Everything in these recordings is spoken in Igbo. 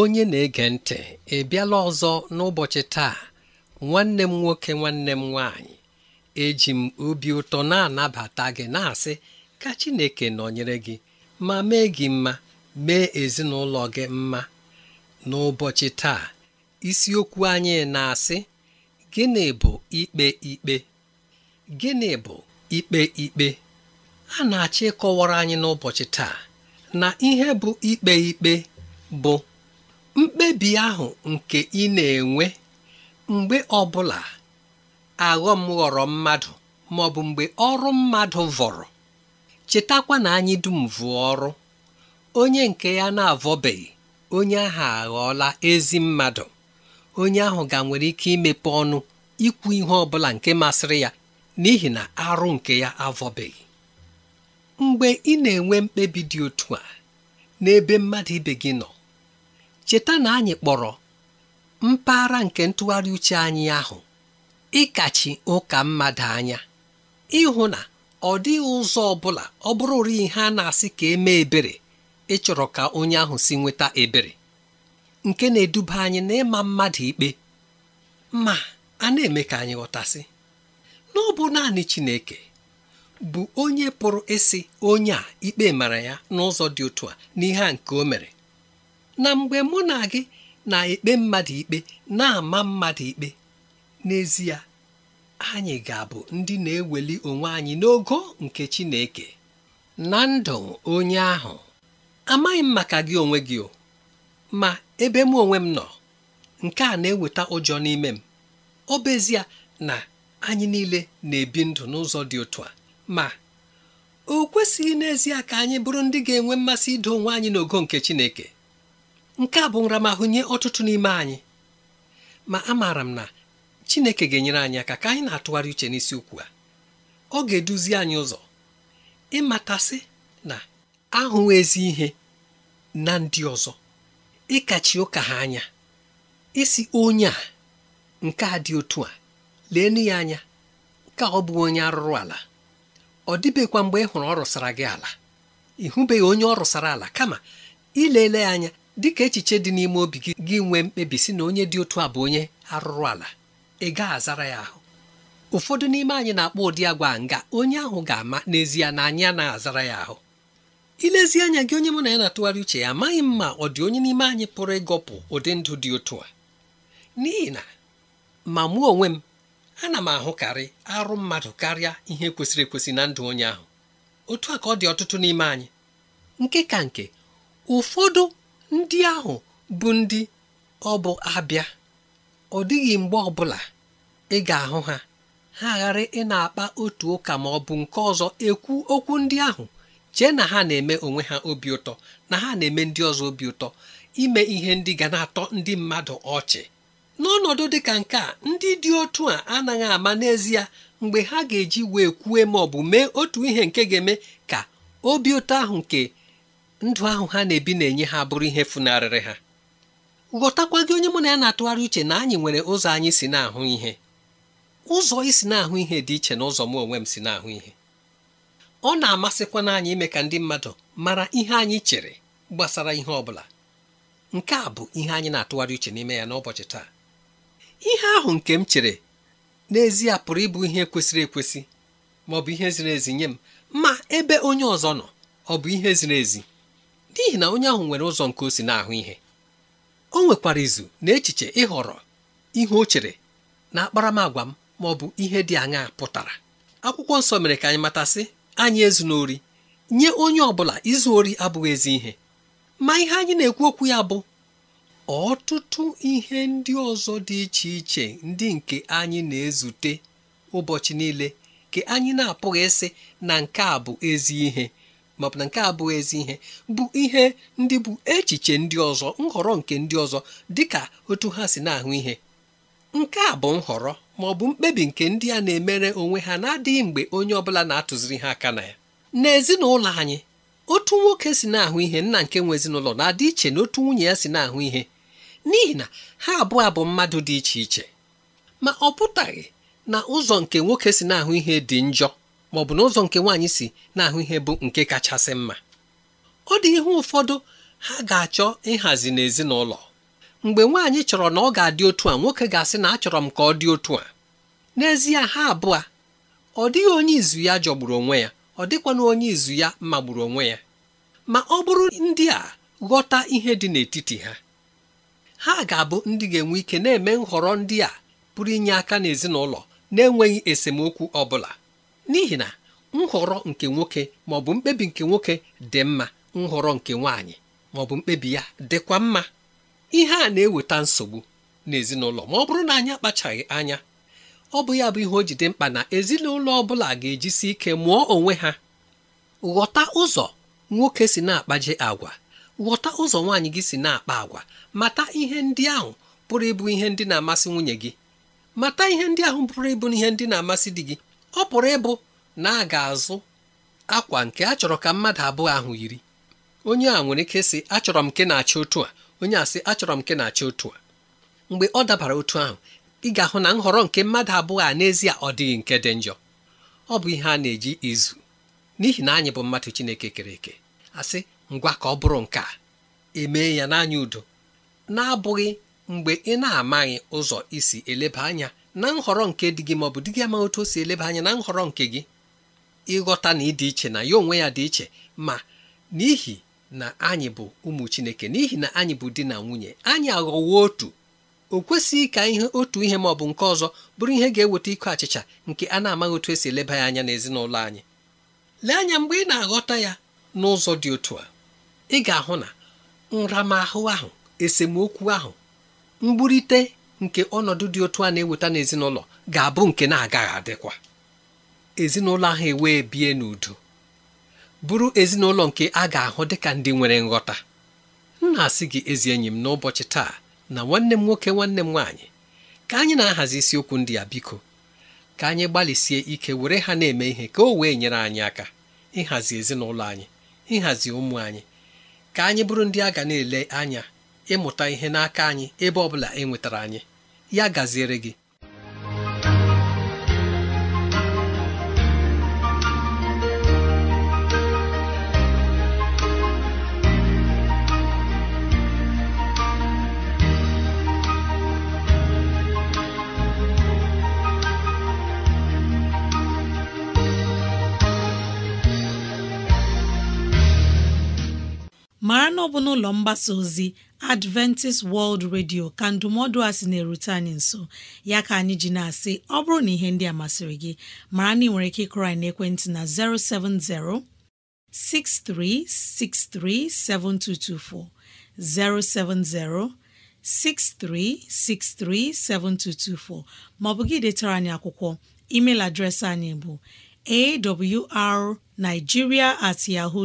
onye na-ege ntị ị bịala ọzọ n'ụbọchị taa nwanne m nwoke nwanne m nwaanyị eji m obi ụtọ na-anabata gị na-asị ka Chineke nọnyere gị ma mee gị mma mee ezinụlọ gị mma n'ụbọchị taa isiokwu anyị na-asị gịnị bụ ikpe ikpe gịnị bụ ikpe ikpe a na-achọ ịkọwara anyị n'ụbọchị taa na ihe bụ ikpe ikpe bụ mkpebi ahụ nke ị na-enwe mgbe ọbụla aghọm ghọrọ mmadụ ma bụ mgbe ọrụ mmadụ vọrọ chetakwa na anyị dum vụọ ọrụ onye nke ya na-avọbeghị onye ahụ aghọọla ezi mmadụ onye ahụ ga nwere ike imepe ọnụ ikwu ihe ọbụla nke masịrị ya n'ihi na arụ nke ya avọbeghị mgbe ị na-enwe mkpebi dị otu a n'ebe mmadụ ibe gị nọ cheta na anyị kpọrọ mpaghara nke ntụgharị uche anyị ahụ ịkachi ụka mmadụ anya ịhụ na ọ dịghị ụzọ ọ bụla ọ bụrụ ihe a na-asị ka eme ebere ịchọrọ ka onye ahụ si nweta ebere nke na-eduba anyị na mmadụ ikpe ma a na-eme ka anyị ghọtasị na ọ bụ naanị Chineke bụ onye pụrụ ịsị onye a ikpe mara ya n'ụzọ dị otu a n'ihe a nke o mere na mgbe mụ na gị na-ekpe mmadụ ikpe na-ama mmadụ ikpe n'ezie anyị ga-abụ ndị na-eweli onwe anyị n'ogo nke Chineke na ndụ onye ahụ amaghị m maka gị onwe gị o ma ebe m onwe m nọ nke a na-eweta ụjọ n'ime m ọ bụ ezie na anyị niile na-ebi ndụ n'ụzọ dị otu a ma o kwesịghị n'ezie ka anyị bụrụ ndị ga-enwe mmasị ido onwe anyị n'ogo nke Chineke nke a bụ nramahụ nye ọtụtụ n'ime anyị ma amaara m na Chineke ga-enyere anyị aka ka anyị na-atụgharị uche n'isi ukwu a ọ ga-eduzi anyị ụzọ ịmatasị na ahụ ezi ihe na ndị ọzọ ịkachi ụka ha anya isi onye a nke a dị otu a leenu ya anya ka ọ bụ onye arụrụ ala ọ dịbekwa mgbe ị hụrụ ọ rụsara gị ala ị onye ọ rụsara ala kama ileele ya anya dị ka echiche dị n'ime obi gị gị nwee mkpebi si na onye dị otu a bụ onye arụrụ ala ị gaa azara ya ahụ ụfọdụ n'ime anyị na-akpọ ụdị agwa nga onye ahụ ga-ama n'ezie na anyị anaghị azara ya ahụ ilezi anya gị onye mụ na ya na-atụgharị uche ya amaghị m ma ọ dị onye n'ime anyị pụrụ ịgọpụ ụdị ndụ dị otu a n'ihi na ma mụ onwe m ana m ahụkarị arụ mmadụ karịa ihe kwesịrị ekwesị na ndụ onye ahụ otu a ka ọ dị ọtụtụ n'ime anyị nke ka nke ụfọdụ ndị ahụ bụ ndị ọ bụ abịa ọ dịghị mgbe ọbụla ị ga-ahụ ha ha ghara ị na-akpa otu ụka ma ọ bụ nke ọzọ ekwu okwu ndị ahụ chee na ha na-eme onwe ha obi ụtọ na ha na-eme ndị ọzọ obi ụtọ ime ihe ndị ga na-atọ ndị mmadụ ọchị n'ọnọdụ dị ka nke a ndị dị otu a anaghị ama n'ezie mgbe ha ga-eji wee kwue ma ọ bụ mee otu ihe nke ga-eme ka obi ụtọ ahụ nke ndụ ahụ ha na-ebi na-enye ha bụrụ ihe funarịrị ha ghọtakwa gị onye mụ na ya na-atụgharị uche na anyị nwere ụzọ anyị si na-ahụ ihe ụzọ isi na-ahụ ihe dị iche na ụzọ m onwe m si na-ahụ ihe ọ na-amasịkwa na anyị ime ka ndị mmadụ mara ihe anyị chere gbasara ihe ọ bụla nke a bụ ihe anyị na-atụgharị uche n'ime ya n'ụbọchị taa ihe ahụ nke m chere n'ezie pụrụ ịbụ ihe kwesịrị ekwesị ma ọ bụ ihe ziri ezi nye m ma ebe onye ọzọ nọ ọ bụ ihe ziri ezi n'ihi na onye ahụ nwere ụzọ nke o si na-ahụ ihe o nwekwara izu na echiche ịhọrọ ihe o chere na akparamagwa m ma ọ bụ ihe dị anya pụtara akwụkwọ nsọ mere ka anyị matasị anyị ezu n'ori nye onye ọ bụla izu ori abụghị ezi ihe ma ihe anyị na-ekwu okwu ya bụ ọtụtụ ihe ndị ọzọ dị iche iche ndị nke anyị na-ezute ụbọchị niile ka anyị na-apụghị ịsị na nke a bụ ezi ihe ma ọ bụ na nke a abụghị ezi ihe bụ ihe ndị bụ echiche ndị ọzọ nhọrọ nke ndị ọzọ dịka otu ha si na-ahụ ihe nke a bụ nhọrọ ma ọ bụ mkpebi nke ndị a na-emere onwe ha na-adịghị mgbe onye ọbụla na-atụziri ha aka na ya n'ezinụlọ anyị otu nwoke si na-ahụ ihe nna nke nwe ezinụlọ na-adị iche na otu nwunye ya si na-ahụ ihe n'ihi na ha abụọ abụ mmadụ dị iche iche ma ọ pụtaghị na ụzọ nke nwoke si na-ahụ ihe dị njọ ma ọ bụ n'ụzọ nke nwaanyị si na-ahụ ihe bụ nke kachasị mma ọ dị ihe ụfọdụ ha ga-achọ ịhazi n'ezinụlọ mgbe nwaanyị chọrọ na ọ ga-adị otu a nwoke ga-asị na achọrọ m ka ọ dị otu a n'ezie ha abụọ ọ dịghị onye izu ya jọgburu onwe ya ọ dịkwana onye izu ya magburu onwe ya ma ọ bụrụ ndị a ghọta ihe dị n'etiti ha ha ga-abụ ndị ga-enwe ike na-eme nhọrọ ndị a pụrụ inye aka n'ezinụlọ na-enweghị esemokwu ọ bụla n'ihi na nhọrọ nke nwoke ma ọ bụ mkpebi nke nwoke dị mma nhọrọ nke nwaanyị ma ọ bụ mkpebi ya dịkwa mma ihe a na-eweta nsogbu n'ezinụlọ ma ọ bụrụ na anyị akpachaghị anya ọ bụ ya bụ ihe o ji dị mkpa na ezinụlọ ọ bụla ga-ejisi ike mụọ onwe ha ghọta ụzọ nwoke si na-akpaje agwa ghọta ụzọ nwaanyị gị si na-akpa agwa mata ihe ndị ahụ pụrụ ịbụ ihe ndị na-amasị nwunye gị mata ihe ndị ahụ pụrụ ịbụ ihe ndị na-amasị di gị ọ pụrụ ịbụ na a ga-azụ akwa nke a chọrọ ka mmadụ abụọ ahụ yiri onye a nwere ike sị achọrọ m nke na-achị otu a onye a sị achọrọ m nke na-achị otu a mgbe ọ dabara otu ahụ ị ga-ahụ na nhọrọ nke mmadụ abụọ a n'ezie ọ dịghị nke dị njọ ọ bụ ihe a na-eji izu n'ihi na anyị bụ mmadụ Chineke kere eke asị ngwa ka ọ bụrụ nke a emee ya n'anya udo na-abụghị mgbe ị na-amaghị ụzọ isi eleba anya na nhọrọ nke di gị ma ọ bụ di gị amaghị otu o si eleba anya na nhọrọ nke gị ịghọta na ịdị iche na ya onwe ya dị iche ma n'ihi na anyị bụ ụmụ Chineke n'ihi na anyị bụ di na nwunye anyị aghọwo otu o kwesịghị ka otu ihe maọbụ bụ nke ọzọ bụrụ ihe ga-eweta ịkụ achịcha nke a na-amaghị otu esi eleba ya anya n'ezinụlọ anyị lee anya mgbe ị na-aghọta ya n'ụzọ dị otu a ị ga-ahụ na nramahụ ahụ esemokwu ahụ mgburite nke ọnọdụ dị otu a na-eweta n'ezinụlọ ga-abụ nke na-agaghị adịkwa ezinụlọ ahụ ewee bie n'udo bụrụ ezinụlọ nke a ga-ahụ dịka ndị nwere nghọta m na-asị gị ezi enyi m n'ụbọchị taa na nwanne m nwoke nwanne m nwaanyị ka anyị na-ahazi isiokwu ndị a biko ka anyị gbalịsie ike were ha na-eme ihe ka o wee nyere anyị aka ịhazi ezinụlọ anyị ịhazi ụmụ anyị ka anyị bụrụ ndị a ga na-ele anya ịmụta ihe n'aka anyị ebe ọ bụla e nwetara anyị ya gaziere gị mara na ọ bụ n'ụlọ mgbasa ozi adventist world radio ka ndụmọdụ a sị na-erute anyị nso ya ka anyị ji na-asị ọ bụrụ na ihe ndị a masịrị gị mara na ị nwere ike ịkụrọ anyị n'ekwentị na 070 6363 7224 070 6363 7224 maọbụ gị detara anyị akwụkwọ email adreesị anyị bụ awrnigeria at yahoo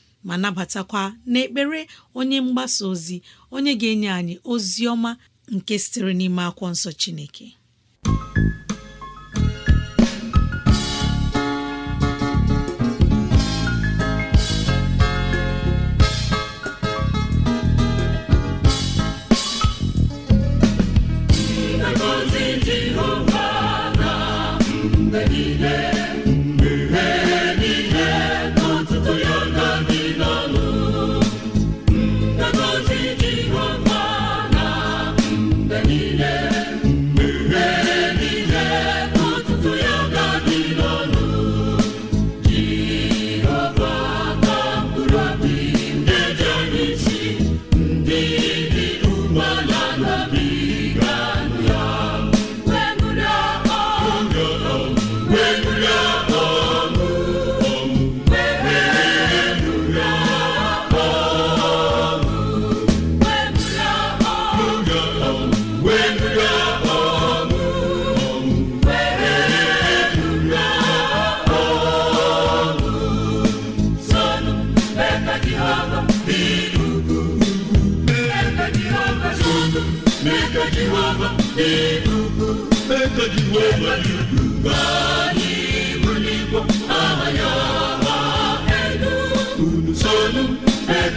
ma nabatakwa n'ekpere onye mgbasa ozi onye ga-enye anyị ozi ọma nke sitere n'ime akwụkwọ nsọ Chineke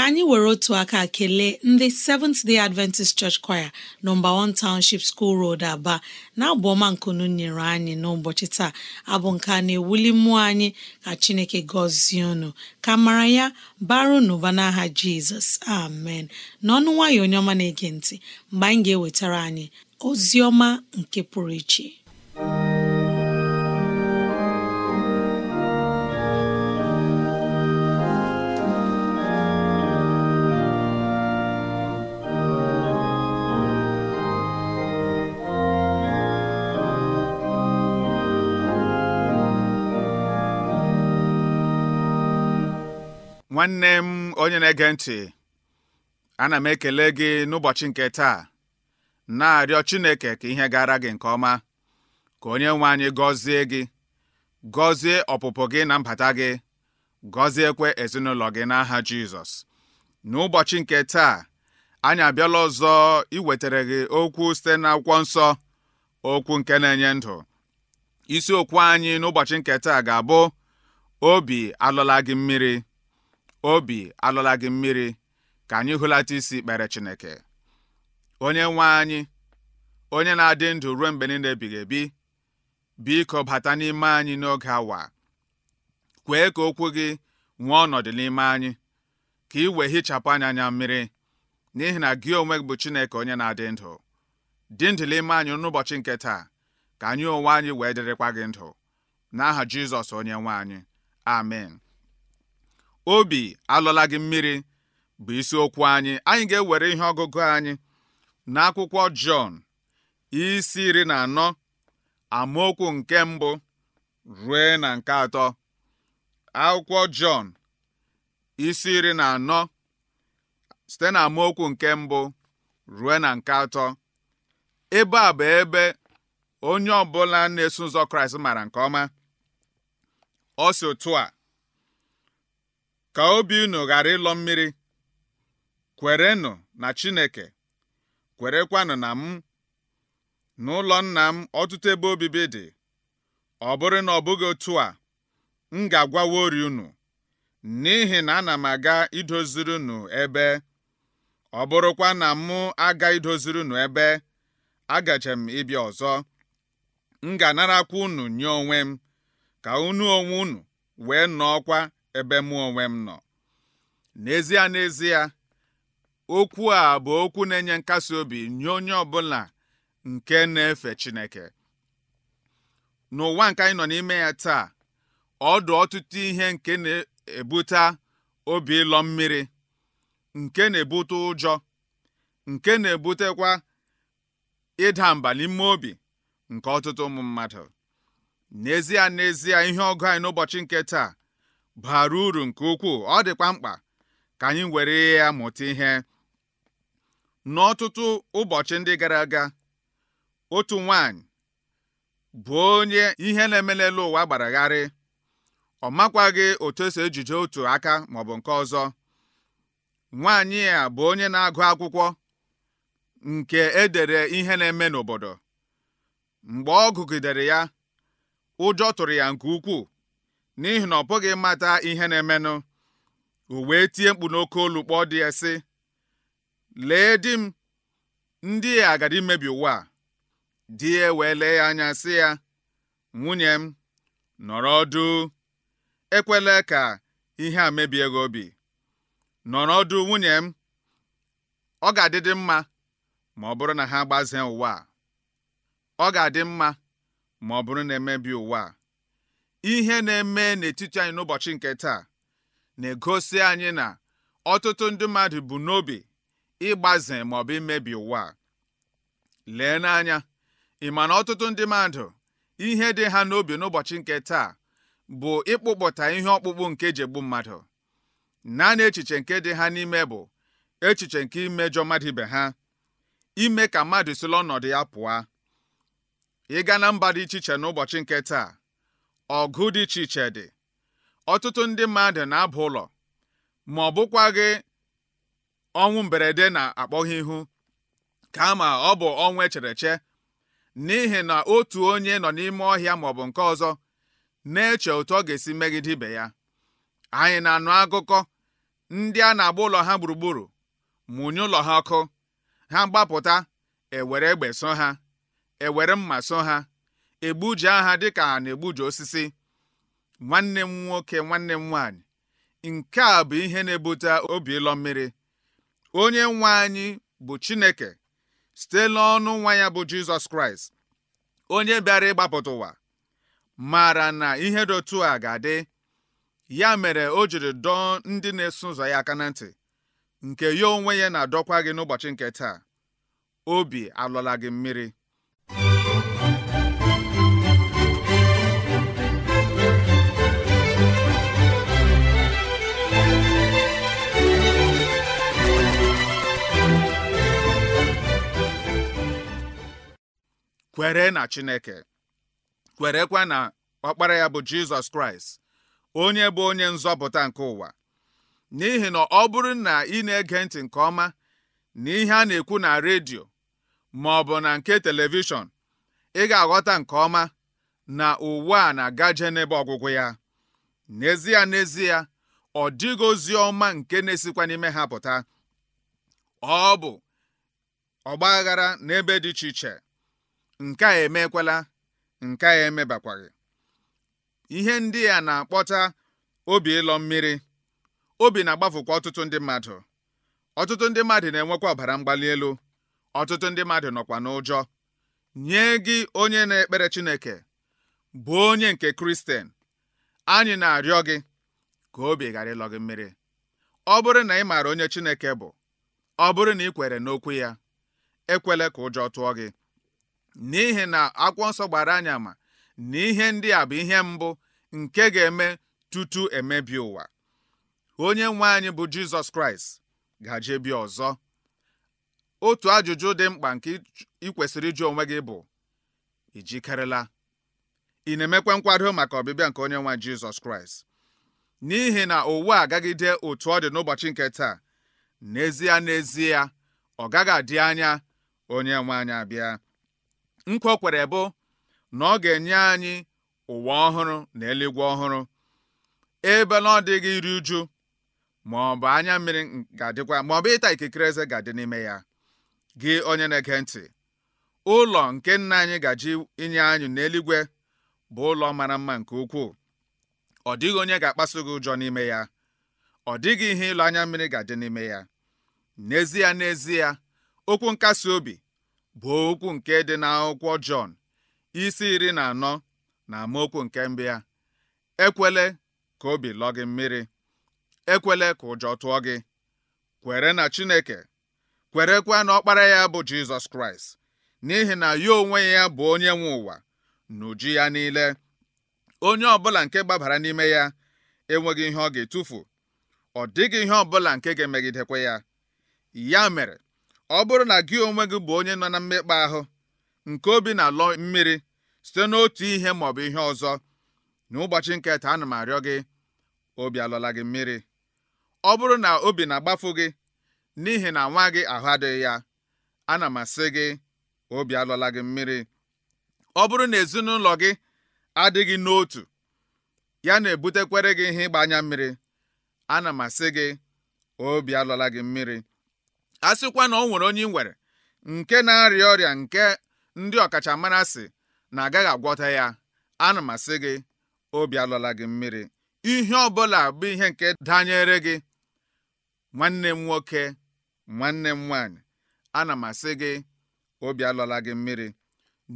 ka anyị were otu aka kelee ndị Seventh Day Adventist Church Choir nọmba 1 Township School Road Aba na-abụ ọma nkunu nyere anyị n'ụbọchị taa abụ nke a na-ewuli mmụọ anyị ka Chineke gọzie unu ka mara ya baru n'ụba n'aha Jizọs amen n'ọnụ nwayọ onye ọma na-ege ntị mgbe anyị ga-ewetara anyị ozi ọma nke pụrụ iche nwanne m onye na-ege ntị ana m ekele gị n'ụbọchị nke taa na-arịọ Chineke ka ihe gara gị nke ọma ka onye nwe anyị gọzie gị gọzie ọpụpụ gị na mbata gị gọziekwe ezinụlọ gị n'aha Jizọs n'ụbọchị nke taa anyị abịala ọzọ iwetara gị okwu site n'akwụkwọ nsọ okwu nke na-enye ndụ isiokwu anyị n'ụbọchị nke taa ga-abụ obi alụla gị mmiri obi alọla gị mmiri ka anyị hụlata isi kpere Chineke onye nwe anyị onye na-adị ndụ ruo mgbe niile ebighị ebi biko bata n'ime anyị n'oge awa kwee ka okwu gị nwee ọnọdụ n'ime anyị ka ị wee hichapụ anya anya mmiri n'ihi na gị onwe gị bụ Chineke onye na-adị ndụ dị ndụ n'ime anyị n'ụbọchị nke taa ka anyị onwe anyị wee dịrịkwa gị ndụ n'aha Jizọs onye nwe anyị amen obi alọla gị mmiri bụ isiokwu anyị anyị ga-ewere ihe ọgụgụ anyị n'akwụkwọ Jọn isi iri na anọ amaokwu nke mbụ rue na nke atọ akwụkwọ Jọn isi iri na anọ site na amaokwu nke mbụ rue na nke atọ ebe a bụ ebe onye ọbụla na-eso ụzọ Kraịst mara nke ọma ọ si otu a ka obi unu ghara ịlọ mmiri kwerenụ na Chineke kwerekwanụ na m n'ụlọ nna m ọtụtụ ebe obibi dị ọ bụrụ na ọ bụghị otu a m ga ori unu n'ihi na ana m aga idoziri unu ebe ọ bụrụkwa na mụ aga idoziri unu ebe agaje m ịbịa ọzọ m ga-anarakwa unu nye onwe m ka unu onwe unu wee nọọkwa ebe mụ onwe m nọ n'ezie n'ezie okwu a bụ okwu na-enye nkasi obi nye onye ọbụla nke na-efe Chineke n'ụwa nke anyị nọ n'ime ya taa ọdụ ọtụtụ ihe nke na-ebute obi ịlọ mmiri nke na-ebute ụjọ nke na-ebutekwa ịda mba n'ime obi nke ọtụtụ ụmụ mmadụ n'ezie n'ezie ihe ọgụ anyị n'ụbọchị nke taa bara uru nke ukwuu ọ dịkwa mkpa ka anyị were ya mụta ihe n'ọtụtụ ụbọchị ndị gara aga otu nwanyị bụ onye ihe na-emelele eme ụwa gbaragharị ọ makwaghị otu esi ejije otu aka maọbụ nke ọzọ nwaanyị a bụ onye na-agụ akwụkwọ nke edere ihe na-eme n'obodo mgbe ọ gụgidere ya ụjọ tụrụ ya nke ukwuu n'ihi na ọ pụghị mata ihe na-emenụ uwe tie mkpu n'oke olu kpọọ dị ya sị lee di m ndị a agadi imebi ụwa di ya wee lee ya anya sị ya nwunye m nọrọ ọdụ ekwela ka ihe a mebie gị obi nọrọ ọdụ nwunye m ọ ga-adịdị mma ma ọ bụrụ na ha gbazee ụwa ọ ga-adị mma ma ọ bụrụ na emebi ụwa a ihe na-eme n'etiti anyị n'ụbọchị nke taa na-egosi anyị na ọtụtụ ndị mmadụ bụ n'obi ịgbaze maọbụ imebi ụwa lee n'anya ị ma na ọtụtụ ndị mmadụ ihe dị ha n'obi n'ụbọchị nke taa bụ ịkpụpụta ihe ọkpụkpụ nke e jegbu mmadụ naanị echiche nke dị ha n'ime bụ echiche nke imejọ mmadụ ibe ha ime ka mmadụ sila ọnọdụ ya pụọ ịga na mba dị iche iche n'ụbọchị nke taa ọgụ dị iche iche dị ọtụtụ ndị mmadụ na-aba ụlọ ma ọ bụkwaghị ọnwụ mberede na-akpọghị ihu kama ọ bụ ọnwụ e che n'ihi na otu onye nọ n'ime ọhịa maọbụ nke ọzọ na-eche otu ọ ga-esi megide ibe ya anyị na-anụ akụkọ ndị a na-agba ụlọ ha gburugburu mụnye ụlọ ha ọkụ ha gbapụta ewere egbe so ha ewere mma so ha egbuje aha dịka a na-egbuje osisi nwanne m nwoke nwanne m nwaanyị nke a bụ ihe na-ebute obi ịlọ mmiri onye nwa anyị bụ Chineke site n'ọnụ nwa ya bụ Jizọs Kraịst onye bịara ịgbapụta ụwa mara na ihe dotu a ga-adị ya mere o jiri dọọ ndị na-eso ụzọ ya aka na ntị nke ya onwe ya na-adọkwa gị n'ụbọchị nke taa obi alọla gị mmiri kwere na Chineke kwerekwa na ọkpara ya bụ Jizọs Kraịst onye bụ onye nzọpụta nke ụwa n'ihi na ọ bụrụ na ị na-ege ntị nke ọma na ihe a na-ekwu na redio ma ọ bụ na nke telivishọn ị ga-aghọta nke ọma na ụwa a na-agaje n'ebe ọgwụgwụ ya n'ezie n'ezie ọ dịghị ozi ọma nke na-esikwa n'ime ha pụta ọ bụ ọgba aghara n'ebe dị iche iche nke a emekwala nke a emebakwaghị ihe ndị a na-akpọta obi ịlọ mmiri obi na-agbafukwa ọtụtụ ndị mmadụ ọtụtụ ndị mmadụ na-enwekwa ọbara mgbali elu ọtụtụ ndị mmadụ nọkwa n'ụjọ nye gị onye na-ekpere Chineke bụ onye nke Kristen anyị na-arịọ gị ka obi ghara ịlọ gị mmiri ọ bụrụ na ị maara onye Chineke bụ ọ bụrụ na ị kwere n'okwu ya ekwela ka ụjọ tụọ gị n'ihi na akwụkwọ nsọ gbara anyị ama na ihe ndị a bụ ihe mbụ nke ga-eme tutu emebi ụwa onye nwe anyị bụ jizọs kraịst gaje bi ọzọ otu ajụjụ dị mkpa nke ị kwesịrị ịjụ onwe gị bụ ijikerela ị na-emekwa nkwado maka ọbịbịa nke onye nwe jizọs kraịst n'ihi na ụwa agagide otu ọ dị n'ụbọchị nke taa n'ezie n'ezie ọ gaghị adị anya onye nwe anyị abịa nkwa kwere bụ na ọ ga-enye anyị ụwa ọhụrụ na eluigwe ọhụrụ ebe na ọ dịghị iri uju ma ọ bụ anya mmiri ga-adịkwa ma ọ bụ ịta ikikere eze ga-adị n'ime ya gị onye na-ege ntị ụlọ nke nna anyị gaji inye anyị n'eluigwe bụ ụlọ mara mma nke ukwuu ọ dịghị onye ga-akpasu gị ụjọ n'ime ya ọ dịghị ihe ịlụ anya mmiri ga-adị n'ime ya n'ezie n'ezie okwu nkasi obi bụ okwu nke dị n'akwụkwọ Jọn isi iri na anọ na amaokwu nke mbụ ya ekwele ka obi lọ gị mmiri ekwele ka ụjọ tụọ gị kwere na Chineke kwerekwa na ọkpara ya bụ Jizọs Kraịst n'ihi na ya onwe ya bụ onye nwe ụwa n'uju ya niile onye ọbụla nke gbabara n'ime ya enweghị ihe ọ ga-etufu ọ dịghị ihe ọbụla nke ga-emegidekwa ya ya mere Ọ bụrụ na gị onwe gị bụ onye nọ na mmekpa ahụ nke obi na-alọ mmiri site n'otu ihe maọbụ ihe ọzọ n'ụbọchị nke taa ana m arịọ gị obi alọla gị mmiri ọ bụrụ na obi na-agbafu gị n'ihi na nwa gị ahụ adịghị ya ana m asị gị obi alọla gị mmiri ọ bụrụ na ezinụlọ gị adịghị n'otu ya na-ebutekwere gị ihe ịgba anya mmiri ana m asị gị obi alọla gị mmiri a sịkwa na ọ nwere onye nwere nke na-arịa ọrịa nke ndị ọkachamara sị na agaghị agwọta ya ana m asị gị obi alọla gị mmiri ihe ọbụla bụ ihe nke danyere gị nwanne m nwoke nwanne m nwanyị ana m asị gị obi alọla gị mmiri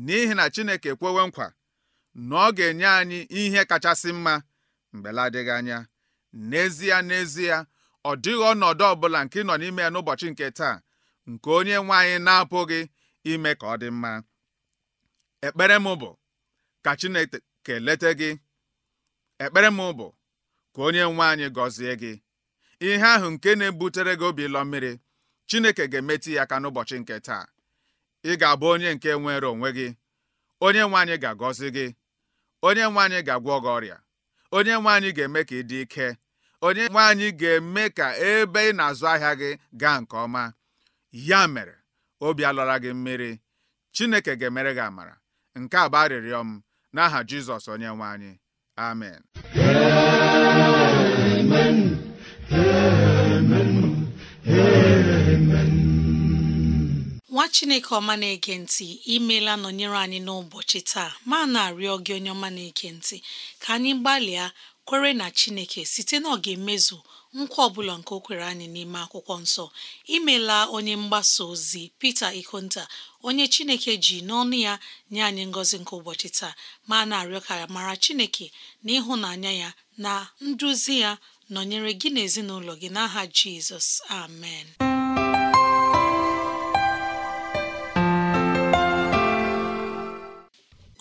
n'ihi na Chineke ekwewe nkwa na ọ ga-enye anyị ihe kachasị mma mgbe anya n'ezie n'ezie ọ dịghị ọnọdụ ọbụla nke nọ n'ime ya n'ụbọchị nke taa nke onye nwe anyị na-apụghị ime ka ọ dị mma ekpere m bụ ka Chineke kelete gị ekpere m bụ ka onye nwe anyị gọzie gị ihe ahụ nke na-ebutere gị obi ịlọ mmiri Chineke ga-emetụ ya aka n'ụbọchị nke taa ị ga-abụ onye nke nwere onwe gị onye nwe anyị ga-agọzi gị onye nwe anyị ga-agwọ gị ọrịa onye nwe anyị ga-eme ka ị dị ike onye nwe anyị ga-eme ka ebe ị na-azụ ahịa gị gaa nke ọma ya mere obi alọra gị mmiri Chineke ga-emere gị amara nke a bụ arịrịọ m n'aha Jizọs onye nwe anyị amen amen amen amen nwa chineke ọma na-ege ntị imeela nọnyere anyị n'ụbọchị taa ma na-arịọ gị onye ọma na-ege ntị ka anyị gbalịa kwere na chineke site na ọ emezu nkwa ọbụla nke o kwere anyị n'ime akwụkwọ nsọ imela onye mgbasa ozi pete Ikonta onye chineke ji n'ọnụ ya nye anyị ngozi nke ụbọchị taa ma na-arịọ ka mara chineke na ịhụnanya ya na nduzi ya nọnyere gị na ezinụlọ gị n'aha Jizọs amen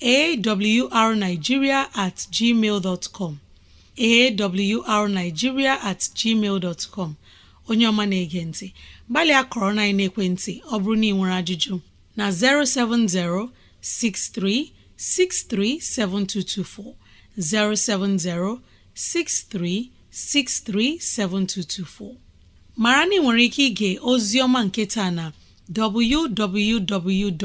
awrnigeria at gmail com awrnigeria at gmail com onye ọma na-ege ntị gbalịa kọrọ na ekwentị ọ bụrụ na ị nwere ajụjụ na 070 63 7224 070 6363 7224 mara na ị nwere ike ige ozi ọma nke taa na www.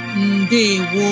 ndewo